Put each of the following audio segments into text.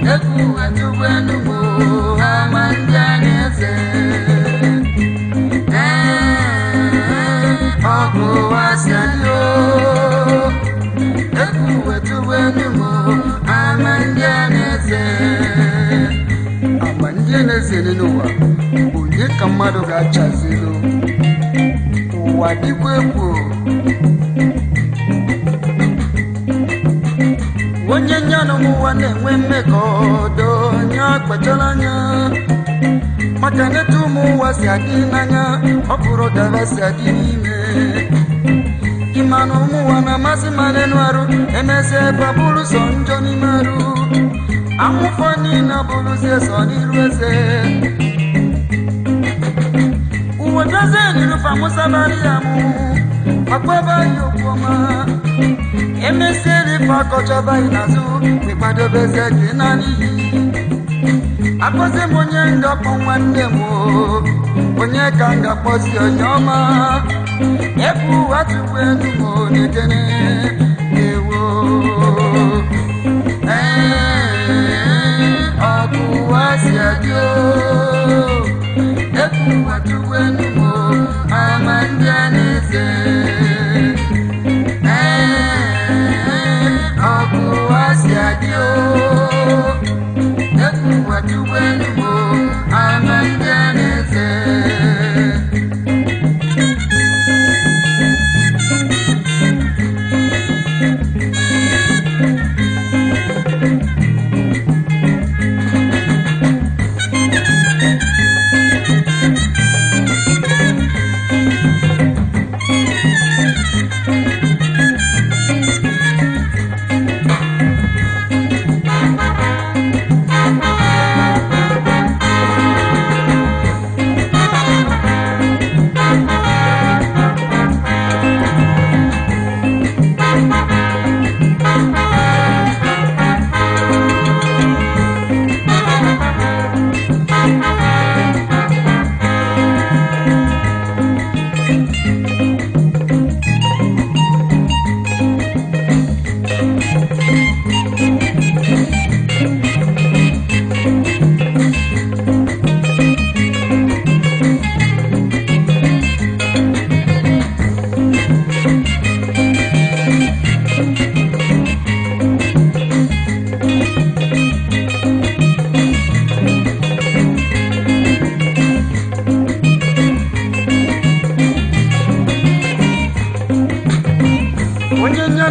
eku atubu enugu ama ndị a na-eze ọgụ wasayo eku atubu enugu ama ndị a na-eze onye ka mmadụ ga-achazilo ụwa dịkwa egwu onye nyanụ n'ụwa na-enwe mmekọ ọdọ nya kpachara anya maka neta ụmụ ụwa si adị n'anya ọ bụrụ dara si adị n'ime ịmanụ ụmụ na-amasị mara enu arụ emezi ebe bụrụ sọ njọ n'ime arụ amụfọ niile bụrụzie sọ n'iru eze uwe dozie n'iru famusabarị ya mụ makwebe anyị okwu ọma emesịrị ife akọchaba anyị n'azụ ịkwadobezie gị na n'iyi akpọzi m onye ngakpọ nwanne m onye ka m ga-akpọzi onye ọma ebe ụwa tupu m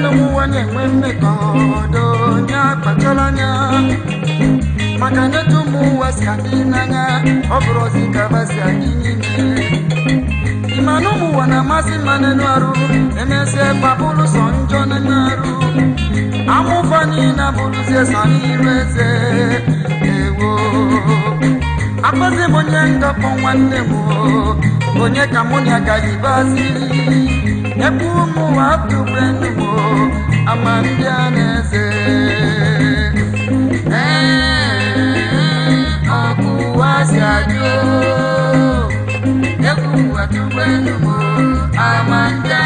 ụmụnwa na-enwe mmekọ ọdọ onye akpachọla anya maka n'etu ụmụ ụwa si adị n'anya ọ bụrụ ozi ka basị anyị niile ịma na ụmụ ụwa na-amasị mma n'elu arụ emesịa gbapụrụ sọ njọ n'elu arụ amụfa niile abụrụzie sọ n'iru eze ewo akpọzi m onye ndọpụ nwanne m onye ka yakumu watu benumo amandianese akuwasiajo eh, eh, yakumu watu benumo amandianese